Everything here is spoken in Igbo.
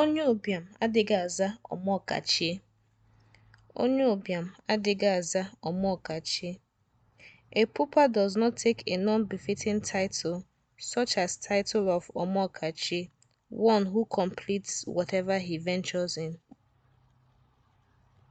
Onye ụbịam adịghị aza ọmọọkachie. Onye ụbịam adịghị aza A pupa does not take a non befitting title such as title of ọmọọkachie, one who completes whatever he ventures in.